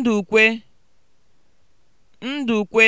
Ndukwe (Ndukwe)